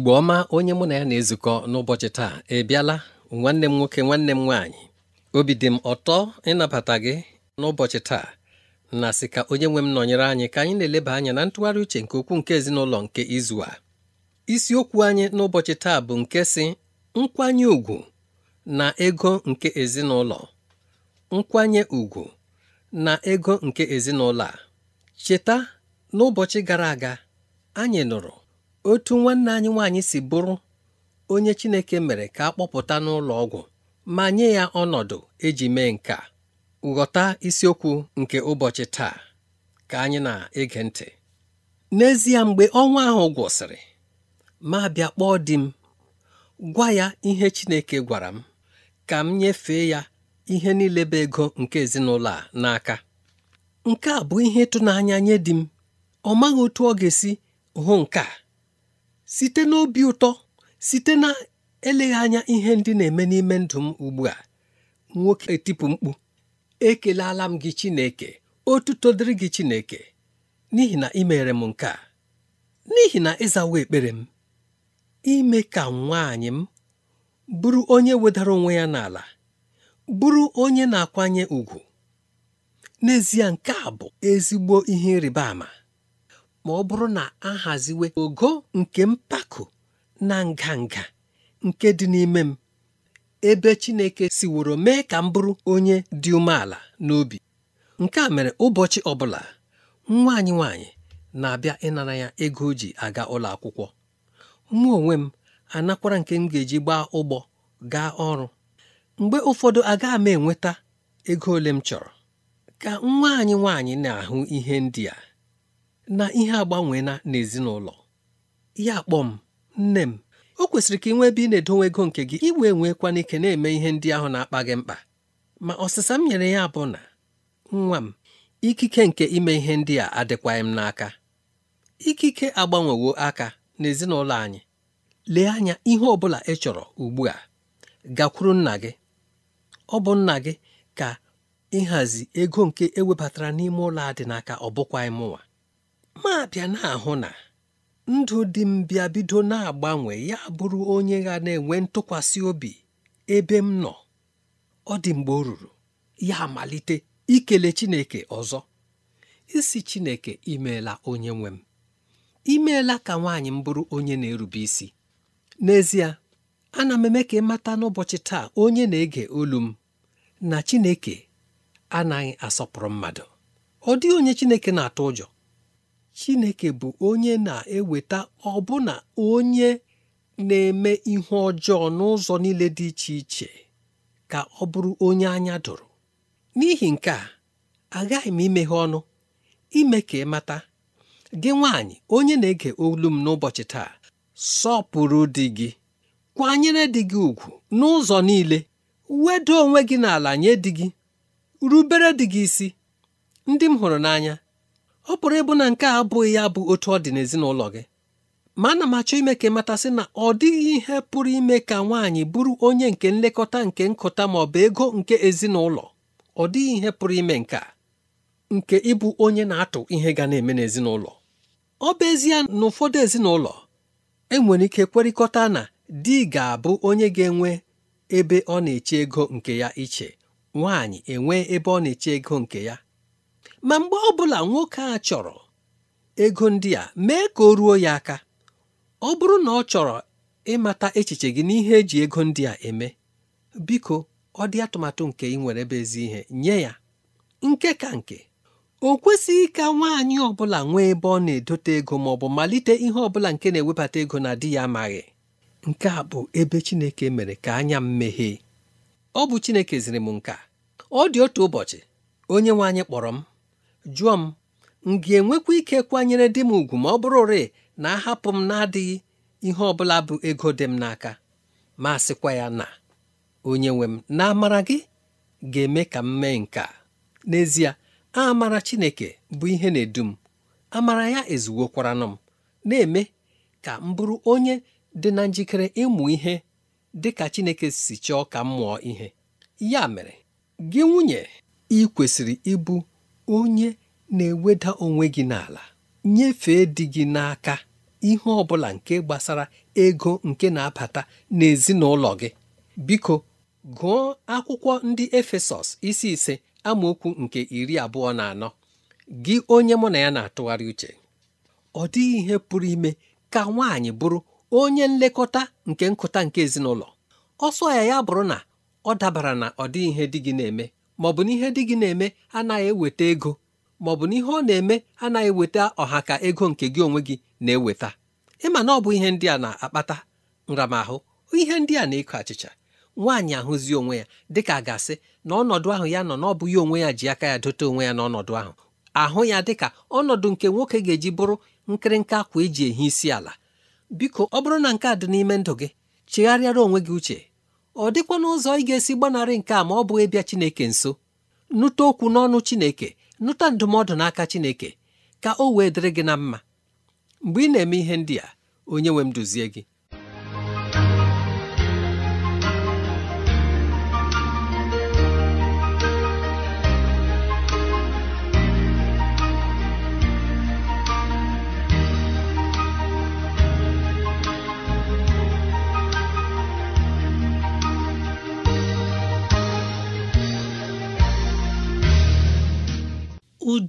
igbo ọma onye mụ na ya na-ezukọ n'ụbọchị taa ị bịala nwanne m nwoke nwanne m nwaanyị obi dị m ọtọ ịnabata gị n'ụbọchị taa na sị ka onye nwe m nọnyere anyị ka anyị na-eleba anya na ntụgharị uche nke okwu nke ezinụlọ nke izu a isiokwu anyị n'ụbọchị taa bụ nke si nkwanye ùgwù na ego nke ezinụlọ nkwanye ùgwù na ego nke ezinụlọ a cheta n'ụbọchị gara aga anyị nụrụ otu nwanne anyị nwaanyị si bụrụ onye Chineke mere ka a kpọpụta n'ụlọ ọgwụ ma nye ya ọnọdụ eji mee nke ghọta isiokwu nke ụbọchị taa ka anyị na-ege ntị n'ezie mgbe ọnwa ahụ gwụsịrị ma bịa kpọọ di m gwa ya ihe Chineke gwara m ka m nyefee ya ihe niile bụ ego nke ezinụlọ a n'aka nke a bụ ihe ịtụnanya nye di m ọ maghị otu ọ ga-esi hụ nke a site n'obi ụtọ site na eleghị anya ihe ndị na-eme n'ime ndụ m ugbu a nwoke etipụ mkpu ekelala m gị Chineke otuto dịrị gị Chineke n'ihi na ị m nke a n'ihi na ịzawa ekpere m ime ka nwaanyị m bụrụ onye wedara onwe ya n'ala bụrụ onye na-akwanye ugwu n'ezie nke a bụ ezigbo ihe ịrịba ama ma ọ bụrụ na a haziwe ogo nke mpako na nganga nke dị n'ime m ebe Chineke siworo mee ka m bụrụ onye dị umeala n'obi nke a mere ụbọchị ọbụla nwa anyị nwaanyị na-abịa ịnara ya ego o ji aga ụlọ akwụkwọ mụ onwe m anakwara nke m ga-eji gbaa ụgbọ gaa ọrụ mgbe ụfọdụ agaghị m enweta ego ole m chọrọ ka nwa anyị nwaanyị na-ahụ ihe ndị a na ihe agbanweela n'ezinụlọ ya kpọọ m nne m o kwesịrị ka ị nwee ebe ị na-edowe ego nke gị iwe nwekwana ike na-eme ihe ndị ahụ na-akpa gị mkpa ma ọsịsa m nyere ya bụ na nwa m ikike nke ime ihe ndị a adịkwaghị m n'aka ikike agbanwewo aka n'ezinụlọ anyị lee anya ihe ọ bụla ị chọrọ ugbu a gakwuru nna gị ọ bụ nna gị ka ịhazi ego nke ewebatara n'ime ụlọ a dị n'aka ọ bụkwaghị mụnwa ma na-ahụ na ndụ dị m bịa bido na-agbanwe ya bụrụ onye ga na-enwe ntụkwasị obi ebe m nọ ọ dị mgbe o ruru ya amalite ikele Chineke ọzọ isi Chineke imeela onye nwe m imeela ka nwaanyị m bụrụ onye na-erube isi n'ezie ana m eme ka ịmata n'ụbọchị taa onye na-ege olu m na Chineke anaghị asọpụrụ mmadụ ọ dịghị onye Chineke na-atụ ụjọ Chineke bụ onye na-eweta ọbụna onye na-eme ihu ọjọọ n'ụzọ niile dị iche iche ka ọ bụrụ onye anya dụrụ n'ihi nke a agaghị m imeghe ọnụ ime ka ị mata gị nwaanyị onye na-ege olu m n'ụbọchị taa sọpụrụ di gị kwanyere di gị ugwu n'ụzọ niile wedo onwe gị n'ala nye di gị rubere di gị isi ndị m hụrụ n'anya ọ pụrụ ịbụ na nke a abụghị ya bụ otu ọ dị n'ezinụlọ gị ma ana m achọ ime ka ịmatasị na ọ dịghị ihe pụrụ ime ka nwaanyị bụrụ onye nke nlekọta nke nkụta ma ọ bụ ego nke ezinụlọ ọ dịghị ihe pụrụ ime nke nke ịbụ onye na-atụ ihe ga na-eme n'ezinụlọ ọ bụ ezie na ụfọdụ ezinụlọ enwere ike kwerịkọta na di ga-abụ onye ga-enwe ebe ọ na-eche ego nke ya iche nwaanyị enwee ebe ọ na-eche ego nke ya ma mgbe ọ bụla nwoke a chọrọ ego ndị a mee ka o ruo ya aka ọ bụrụ na ọ chọrọ ịmata echiche gị n'ihe eji ego ndị a eme biko ọ dị atụmatụ nke ị nwere ebe ezi ihe nye ya nke ka nke o kwesịghị ka nwaanyị ọ bụla nwee ebe ọ na-edote ego ma ọ bụ malite ihe ọ bụla nke na-ewebata ego na di ya amaghị nke a bụ ebe Chineke mere ka anya m meghee ọ bụ Chineke ziri m nka ọ dị otu ụbọchị onye nwe anyị kpọrọ m jụọ m m ga-enwekwa ike kwanyere di m ugwu ma ọ bụrụ rịị na ahapụ m na-adịghị ihe ọ bụla bụ ego dị m n'aka ma sịkwa ya na onye nwe m na amara gị ga-eme ka m mee nke a n'ezie amara Chineke bụ ihe na-edu m amara ya ezuwokwaranụ m na-eme ka m bụrụ onye dị na njikere ịmụ ihe dị ka Chineke si chọọ ka m mụọ ihe ya mere gị nwunye ị kwesịrị ịbụ onye na-eweda onwe gị n'ala nyefee di gị n'aka ihe ọ bụla nke gbasara ego nke na-abata n'ezinụlọ gị biko gụọ akwụkwọ ndị Efesọs isi ise amaokwu nke iri abụọ na anọ gị onye mụ na ya na-atụgharị uche ọ dịghị ihe pụrụ ime ka nwaanyị bụrụ onye nlekọta nke nkụta nke ezinụlọ ọsọ ya ya bụrụ na ọ dabara na ọ dịghị ihe di gị na-eme maọbụ na ihe dị gị na-eme anaghị eweta ego maọbụ na ihe ọ na-eme anaghị eweta ọha ka ego nke gị onwe gị na-eweta ịma na ọ bụ ihe ndị a na-akpata nramahụ ihe ndị a na-eko achịcha nwaanyị ahụzi onwe ya dịka a ga-asị na ọnọdụ ahụ ya nọ na ọ bụghị onwe ya ji aka ya dote onwe ya n'ọnọdụ ahụ ahụ ya dịka ọnọdụ nke nwoke ga-eji bụrụ nkịrịnka akwa eji ehi isi ala biko ọ bụrụ na nke a dị n'ime ndụ gị chegharịara onwe gị uche ọ dịkwana ụzọ ị ga-esi gbanarị nke a ma ọ bụghị bịa Chineke nso nụta okwu n'ọnụ Chineke nụta ndụmọdụ n'aka Chineke ka o wee dịrị gị na mma mgbe ị na-eme ihe ndị a onye nwe m duzie gị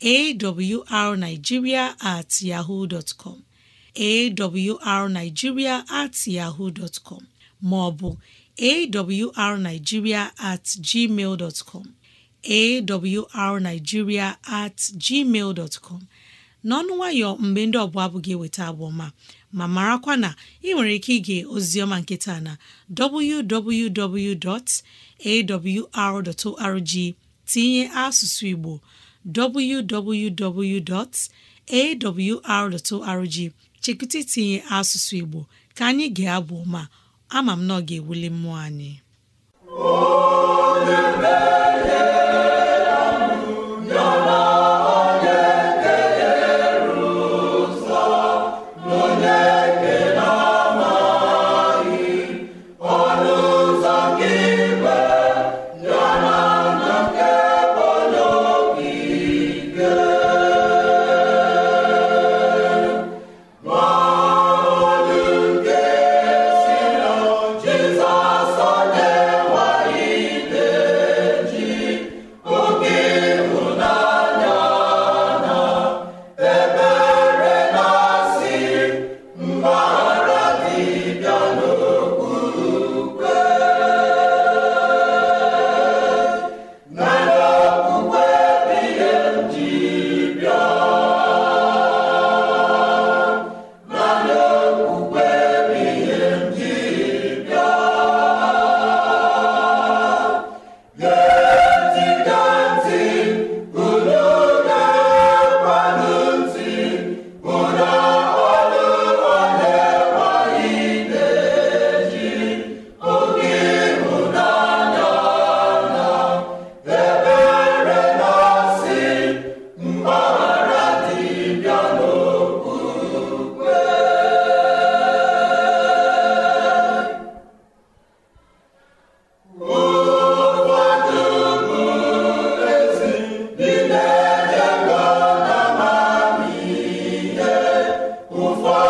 awrnigeria at yahoo dot com at yahoo dot maọbụ awrnigeria at gmail dot com at gmail dot n'ọnụ nwayọ mgbe ndị ọbụla abụghị eweta abụ ma marakwa na ị nwere ike ige ozioma nkịta na www.awr.org tinye asụsụ Igbo www.awr.org chekwụta itinye asụsụ Igbo ka anyị ga-abụ ma ama m na ọ ga-ewuli mmụọ anyị ụfọdụ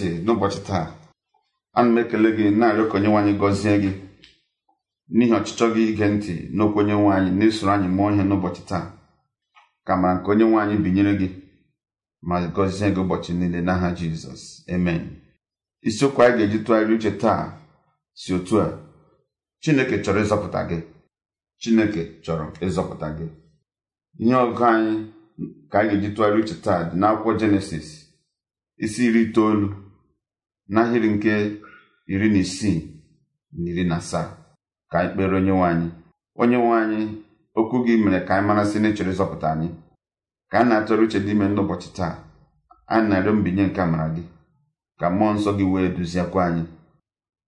ntị n'ụbọchị taa ana m ekele gị na-arịọ ka onyenwe gọzie gị n'ihi ọchịchọ gị ige ntị n'okwu onye nwaanyị na-esoro anyị mụọ ihe n'ụbọchị taa ka mara nke onye nwaanyị binyere gị ma gọzie gị ụbọchị niile n'aha jizọs amen isiokwu anyị ga-eji tụgharị uche taa si otu a chineke chọrọ ịzọpụta gị chineke chọrọ ịzọpụta gị ihe ọgụ anyị ka anyị ga-eji tụgharị uche taa dị n'akwụkwọ jenesis isi iri itoolu n'ahịrị nke iri na isii na iri na asaa ka anyị kpere onye nwe anyị onye nwe anyị okwu gị mere ka anyị marasị na echere ịzọpụta anyị ka a na-atụrụ uche dị ime n'ụbọchị taa anyị na-arịọ mbinye nke amara gị ka mmụọ nsọ gị wee duziekwa anyị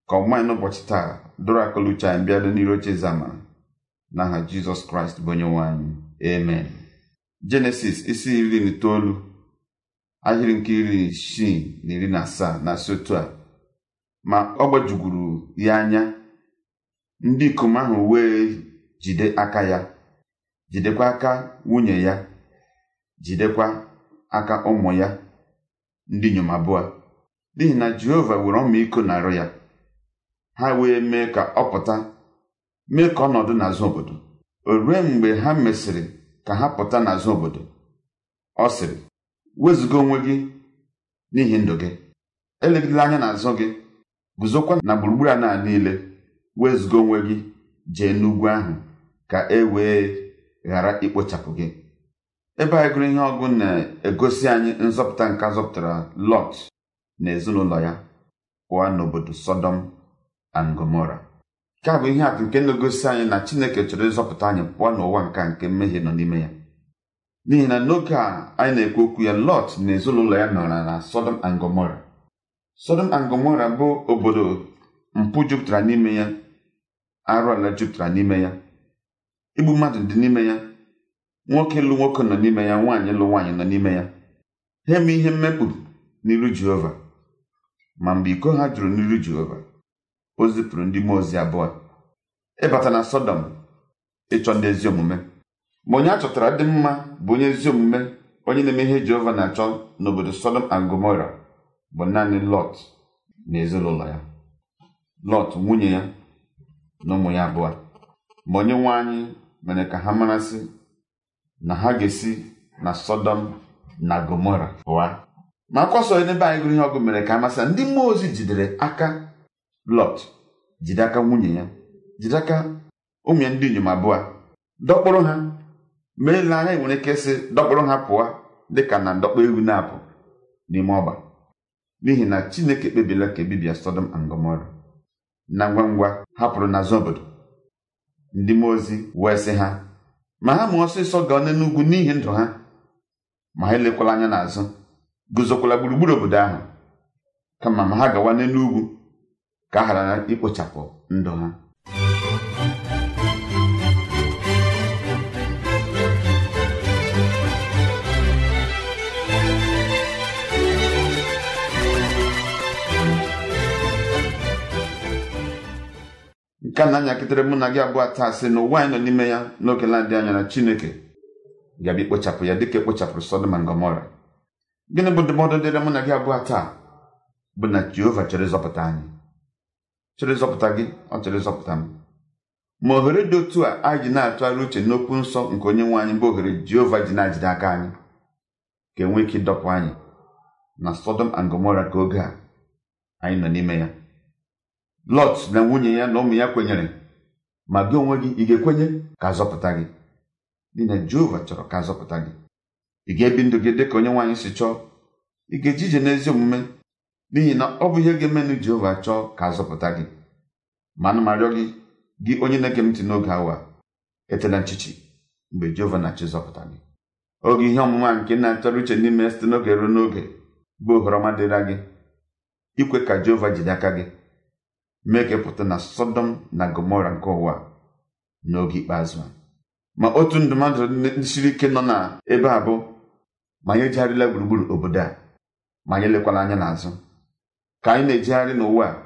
ka ọmụma anyị n'ụbọchị taa dọrọ akụlụ uche anyị bịado n'iru oche eze amara n'aha jizọs kraịst bụ onye nwe anyị Eme. jenesis isi iri na itoolu ahịrị nke iri isii na iri na asaa na asị a ma ọ gbajuguru ya anya ndị ikom ahụ wee jide aka ya jidekwa aka nwunye ya jidekwa aka ụmụ ya ndị inyom abụọ n'ihi na Jehova were ọmịiko na-arụ ya ha wee mee ka ọ pụta mee ka ọnọdụ n'azụ obodo o rue mgbe ha mesịrị ka ha pụta n'azụ obodo ọ sịrị wezụga onwe gị n'ihi ndụ gị elegidela anya n'azụ gị guzokwa na gburugburu ala niile wezụga onwe gị jee n'ugwu ahụ ka e wee ghara ikpochapụ gị ebe anyị gụrụ ihe ọgụ na-egosi anyị nzọpụta nke zọpụtara Lọt na ezinụlọ ya pụọ n'obodo Sọdọm and Gomora nke a bụ ihe atụ nke na-egosi anyị na Chineke chọrọ ịzọpụta anyị pụọ n'ụwa nka nke mmehie nọ n'ime ya n'ihi na n'oge a anyị na-ekwu okwu ya Lọt na ezinụlọ ya nọrọ na Sodom angomora Gomora Sodom bụ obodo mpụ jupụtara n'ime ya arụ ala jupụtara n'ime ya igbu mmadụ dị n'ime ya nwoke lụ nwoke nọ n'ime ya nwaanyị lụ nwaanyị nọ n'ime ya ha eme ihe mmekpu n'iru Jehova ma mgbe iko ha jụrụ n'iru Jehova o zipụrụ ndị mmụọ ozi abụọ ịbata na Sọdọm ịchọ ndị ezi omume ma onye a chọtara dị mma bụ onye ezi omume onye na-eme ihe Jehova na-achọ n'obodo Sodom and Gomora bụ naanị Lọt na ezinụlọ ya Lọt nwunye ya na ụmụ ya abụọ ma onye nwe anyị mere ka ha marasị na ha ga-esi na Sodom na Gomora pụọ ma akwaso nsọ n'ebe anyị gụrụ ihe ọgụ mere ka amasị ndị mmụọ ozi jidere aka Lọt jide aka nwunye ya jide aka ụmụ ya ndị inyom abụọ dọkpụrụ ha ma-ele anya nwere ike sị dọkpụrụ ha pụọ dịka na ndọkpọ ewu na-apụ n'ime ọgba n'ihi na chineke kpebila ka ebibia Sodom and Gomora na ngwa ngwa hapụrụ n'azụ obodo ndị mmụọ ozi wee sị ha ma ha ma ọsịsọ gaa n'ugwu n'ihi ndụ ha ma ha elekwala anya n'azụ guzokwala gburugburu obodo ahụ kama ma ha gawa n'elu ugwu ka a ghara ikpochapụ ndụ ha nke na-anyakịtara mụ na gị abụọ taa sị na ụwa anyị nọ n'ime ya n'oge na anya na chineke ga-abịa ikpochapụ ya dịka ekpochapụrụ Sodom na Gomora gịnị bụ ndụmọdụ dịrị mụ na gị abụọ taa bụ na Jehova chere ịzọpụta anyị chere ịzọpụta gị ọ chere ịzọpụta m ma ohere dị otu a anyị ji na-atụgharị uche n'okwu nsọ nke onye nwe anyị bụ ohere Jehova ji na-ajide aka anyị ka enwee ike ịdọpụ anyị na Sodom na Gomora ka oge a anyị nọ n'ime ya lọt na nwunye ya na ụmụ ya kwenyere ma gị onwe gị ị ga-ekwenye ka azọpụta gị n'ihi na Jehova chọrọ ka azọpụta gị ị ga-ebi ndụ gị dịka onye nwaanyị si chọọ ị ga-eji ije n'ezi omume n'ihi na ọ bụ ihe ga-emenụ Jehova chọọ ka azọpụta gị ma ana marịọ gị gị onye na-ege m ntị n'oge awa etela nchichi mgbe Jehova na-achọ zọpụta gị oge ihe ọmụma nke na-atọrọ uche n'ime site n'oge ruo n'oge bụ ohere ọma dịra gị ikwe ka Jehova jide aka gị mee ka ịpụta na sodom na gomora nke ụwa n'oge ikpeazụ a ma otu ndụmọdụ siri ike nọ na ebe a bụ ma anyị ejigharịla gburugburu obodo a ma anyị elekwala anya n'azụ ka anyị na ejigharị n'ụwa a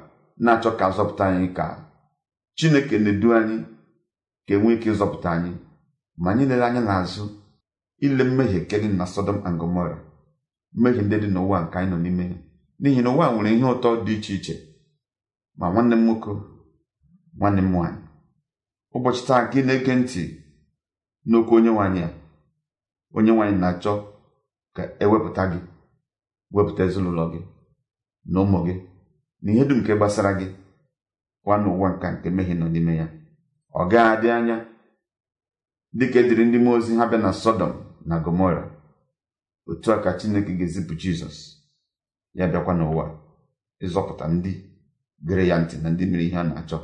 na-achọ ka zọpụta anyị ka chineke na-edu anyị ka enwee ike ịzọpụta anyị ma anyị lere anya n'azụ ile mmehie nke dị na Sodom and Gomora mmehie ndị dị n'ụwa nke anyị nọ n'ime n'ihi na ụwa nwere ihe ụtọ dị iche iche ma nwanne m nwoke nwanne m nwaanyị ụbọchị taa gị na-ege ntị n'okwu onye nwaanyị a onye nwaanyị na-achọ ka ewepụta gị wepụta ezinụlọ gị na ụmụ gị na ihe dum nke gbasara gị kwa n'ụwa nka nke mehie nọ n'ime ya ọ gaghị adị anya dịka ediri ndị mmụọ ozi ha bịa na sọdọm na gomora otu a ka chineke ga-ezipụ jizọs ya bịakwa n'ụwa ịzọpụta ndị gere ya ntị na ndị mere ihe a na-achọ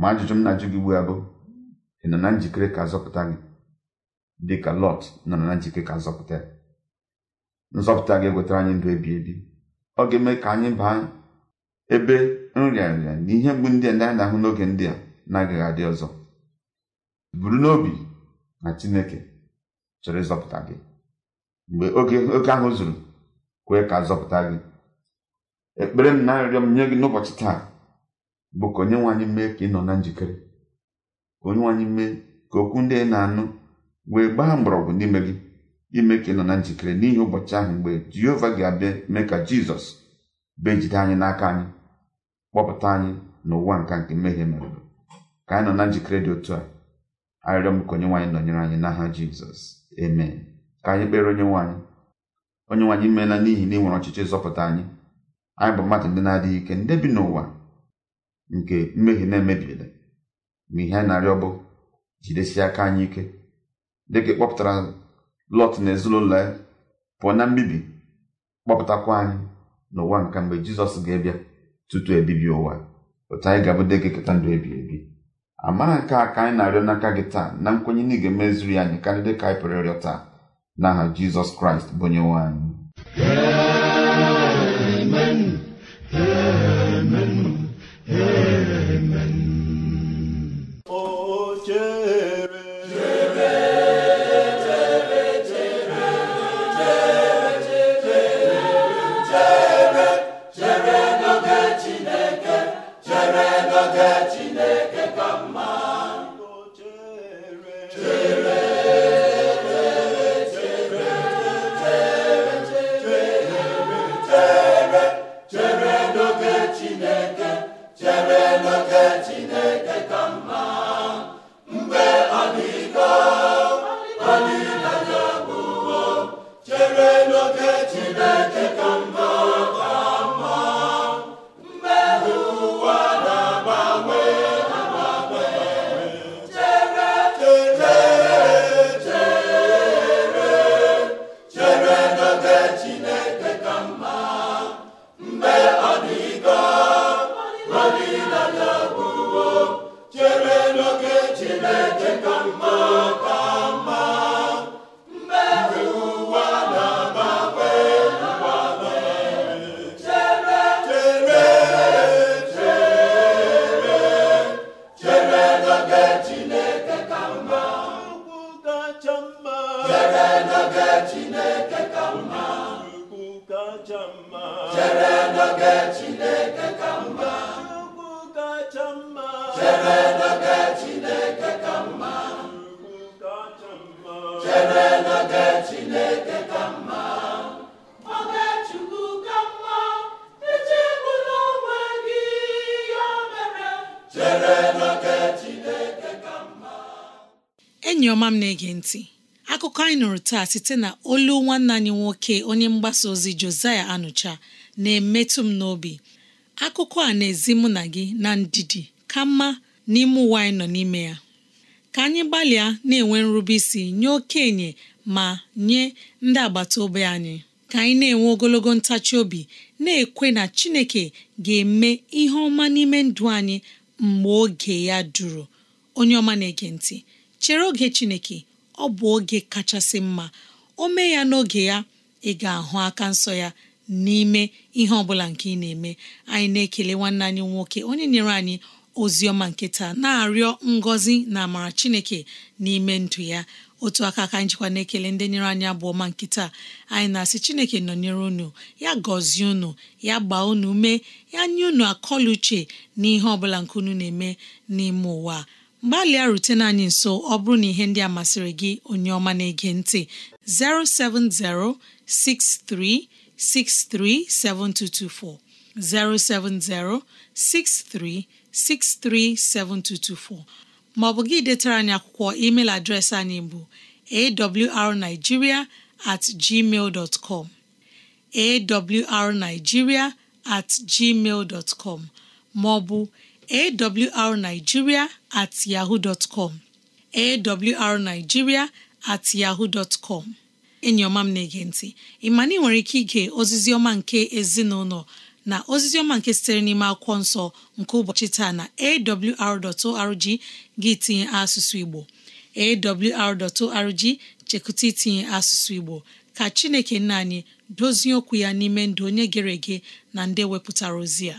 ma ajụjụ m na-ajụ gị ugbu a ị nọ na njikere ka azọpụta gị dị ka Lọt nọ na njikere ka azọpụta nzọpụta gị ewetara anyị ndụ ebi ebi ọ ga-eme ka anyị baa ebe nrịarịa na ihe mgbu ndị a ndị anyị na-ahụ n'oge ndị a na-agaghị adị ọzọ buru n'obi na Chineke chọrọ ịzọpụta gị mgbe oge oke ahụ zuru kwee ka azọpụta gị ekpere m na-arịọ m nye gị n'ụbọchị taa bụ ka onye nwe anyị mee ka ị nọ na njikere ka onye nwe anyị mee ka okwu ndị ị na-anụ wee gbaa mgbọrọgwụ n'ime gị ime ka ị nọ na njikere n'ihi ụbọchị ahụ mgbe Jehova ga-abịa mee ka Jizọs bee jide anyị n'aka anyị kpọpụta anyị n'ụwa nka nke mmehie mere ka anyị nọ na njikere dị otu a arịrịọ m ka onye nwaanyị nọnyere anyị n'aha Jizọs amen ka anyị kpere onye nwaanyị onye nwaanyị meela n'ihi na ị nwere ọchịchị ịzọpụta anyị anyị bụ mmadụ ndị na-adịghị ike ndị bi n'ụwa nke mmehie na-emebiela ma ihe anyị na-arịọ bụ jidesi aka anyị ike dịka kpọpụtara lọt na ezinụlọ ya pụọ na mbibi kpọpụtakwa anyị n'ụwa nke mgbe jizọs ga-ebịa tutu ebibi ụwa otu anyị ga-abụ dịka eketa ndụ ebi ebi amara nke a ka anyị na-arịọ n'aka gị taa na nkwenye na ị ga ya anyị karịa ka anyị pụrụ ịrịọ taa n'aha jizọs kraịst bụ onye nwe anyị ọma m na-ege ntị akụkọ anyị nụrụ taa site na olu nwanne anyị nwoke onye mgbasa ozi Josiah Anụcha na-emetụ m n'obi akụkọ a na-ezi mụ na gị na ndidi ka mma n'ime ụwa anyị nọ n'ime ya ka anyị gbalịa na-enwe nrube isi nye okenye ma nye ndị agbata obi anyị ka anyị na-enwe ogologo ntachi obi na-ekwe na Chineke ga-eme ihe ọma n'ime ndụ anyị mgbe oge ya duru onye ọma na-ege ntị chere oge chineke ọ bụ oge kachasị mma o mee ya n'oge ya ị ga-ahụ aka nsọ ya n'ime ihe ọbụla nke ị na-eme anyị na-ekele nwanne anyị nwoke onye nyere anyị ozi ọma nkịta na-arịọ ngọzi na amara chineke n'ime ndụ ya otu aka aka anyị jikwa na-ekele ndị nyere anyị abụ ọma nkịta anyị na-asị chineke nọnyere unu ya gọzie unu ya gbaa unu mee ya nye unu akọla uche n'ihe ọbụla nke unu na-eme n'ime ụwa gbalịa rutena anyị nso ọ bụrụ na ihe ndị a masịrị gị onye ọma na-ege ntị 07063637224 07063637224 ma ọ bụ gị detara anyị akwụkwọ email adreesị anyị bụ awrnigeria atgmal at com ma ọ bụ awrnigeria at yahoo dot com at yahoo dot com m na-ege ntị ị ị nwere ike ige ozizioma nke ezinụlọ na ozizi ọma nke sitere n'ime akwụkwọ nsọ nke ụbọchị taa na awr.org gị tinye asụsụ Igbo awr.org chekụta itinye asụsụ Igbo ka Chineke nna anyị dozie okwu ya n'ime ndụ onye gere ege na ndị wepụtara ozi ya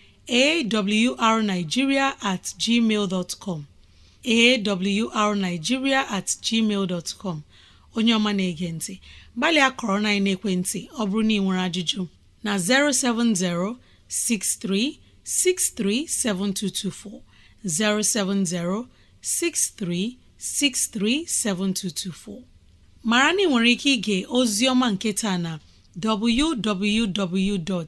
awrnigeria at gmail awrnigeria at gmail dot onye ọma na-ege ntị gbalịa kọrọ na ekwentị ọ bụrụ na ị nwere ajụjụ na 070 63 7224 070 63 63 7224 mara na nwere ike ịga ozi ọma nke taa na www.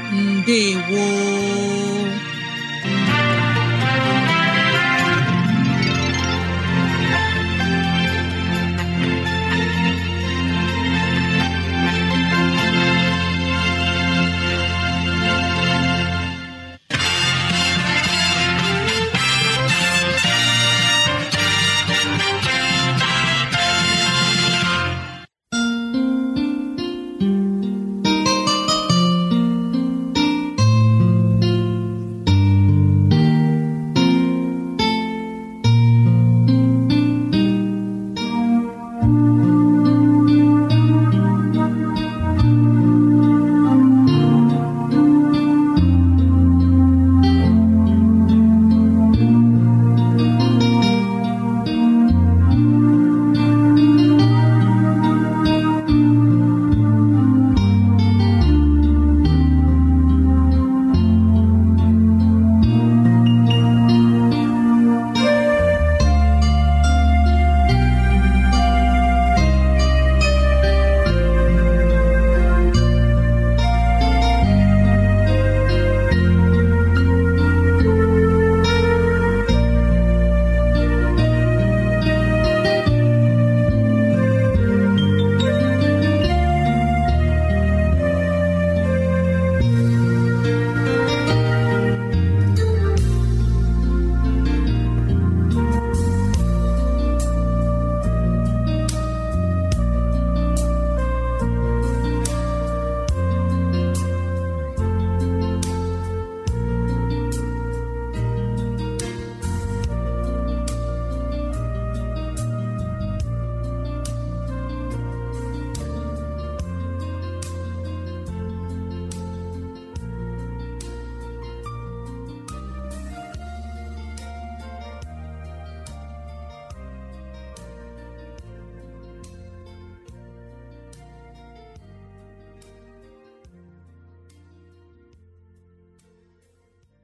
wo